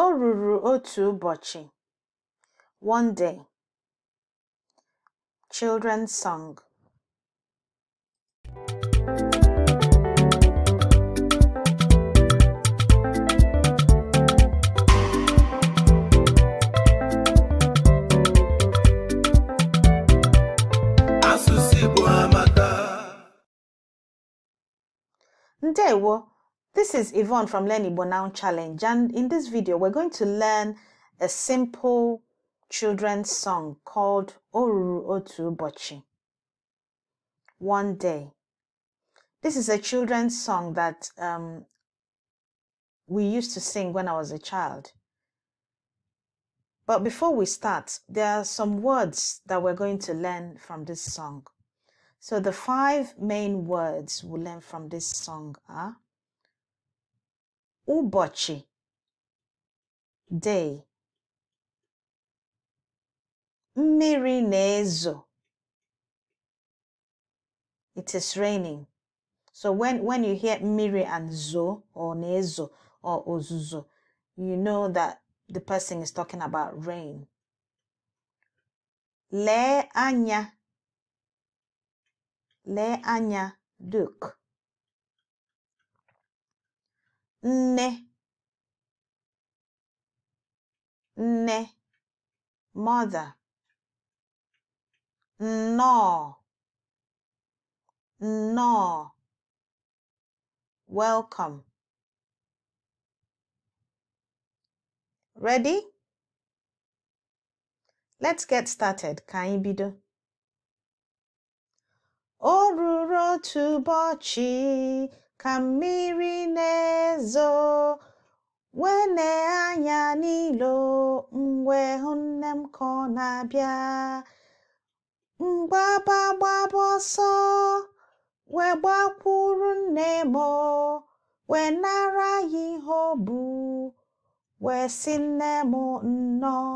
O ruru otu ụbọchị, One Day, Children's Song Ndewo This is Yvonne from Learn Igbo Challenge and in this video we're going to learn a simple children's song called Oruru Otu Bochi. One Day. This is a children's song that um, we used to sing when I was a child. But before we start, there are some words that we're going to learn from this song. So the five main words we'll learn from this song are ụbọchị day mmiri is raining so when when you hear mmiri and zo or nezo or ozuzo you know that the person is talking about rain Le anya Le anya duke ne ne mother no no welcome ready let's get started ka anyị bido ka mmiri na-ezo wee anya n'ilo m wee hụ nne m ka ọ na-abịa mgbaba gbaba ọsọ wee gbakwuru nne m wee nara ya ihe o bụ wee sị nne m nnọọ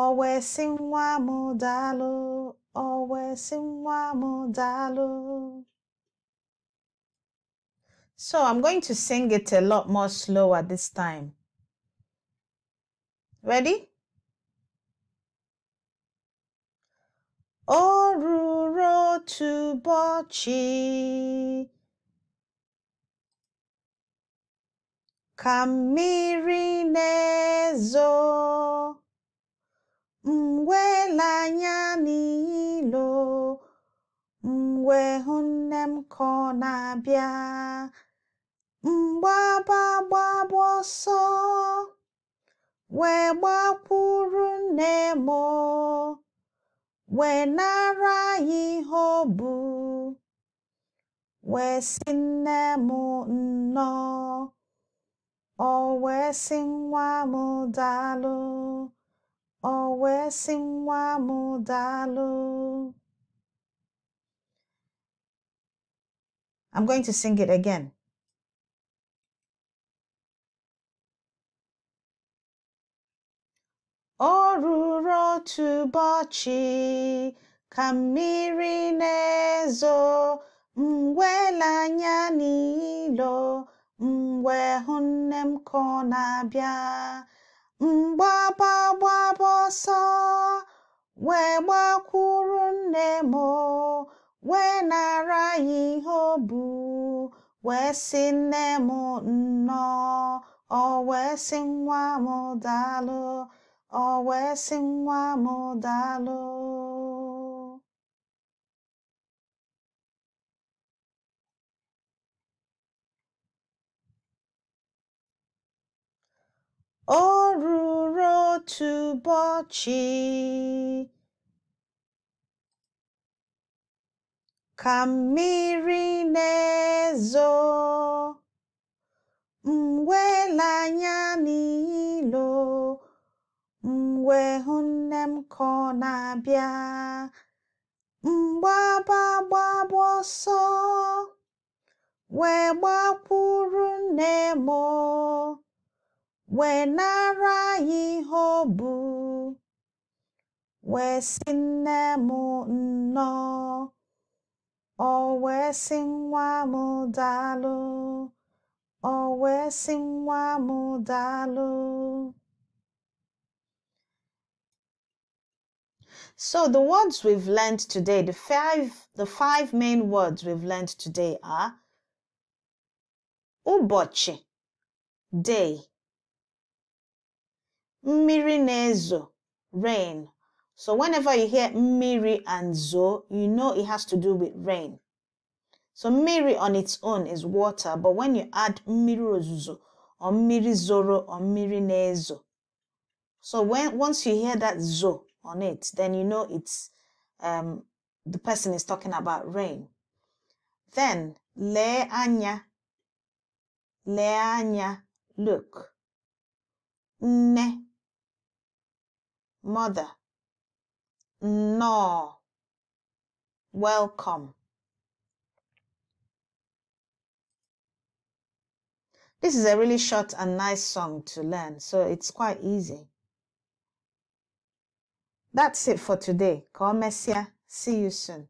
ọ wee sị nwa m daalụ ọ wee sị nwa m daalụ So I'm going to sing it a lot more slower this time. Ready? Oruro to Bochi. Ka mmiri na-ezo mgwela anya mgbaba gbaba ọsọ wee gbakwuru nne m wee nara ihe ọ bụ wee sị nne m nnọọ ọ wee sị nwa m daalụ ọ wee sị nwa m daalụ I'm going to sing it again. O ruru otu ụbọchị ka mmiri na-ezo, m wee anya n'ilo, m wee hụ nne m ka ọ na-abịa. M gbaba gbaba ọsọ, wee gbakwuru nne m, wee nara ya ihe o bu, wee sị nne m nnọọ. Ọ wee sị nwa m daalụ. ọ wee sị nwa m daalụ o ruru otu ụbọchị ka mmiri na-ezo anya nne m ka na-abịa mgbaba gbaba ọsọ wee gbakwuru nne m wee nara ya ihe ọ bụ wee si nne m nnọọ ọ wee sị nwa m daalụ ọ wee sị nwa m daalụ So the words we've learned today, the five, the five main words we've learned today are ụbọchị, day, mmiri rain. So whenever you hear mmiri and zo, you know it has to do with rain. So mmiri on its own is water, but when you add mmiri or mmiri zoro or mmiri nezo, so when once you hear that zo, on it, then you know it's um, the person is talking about rain. Then le anya, le anya, look. Ne, mother. No, welcome. This is a really short and nice song to learn, so it's quite easy. That's it for today. God bless you. See you soon.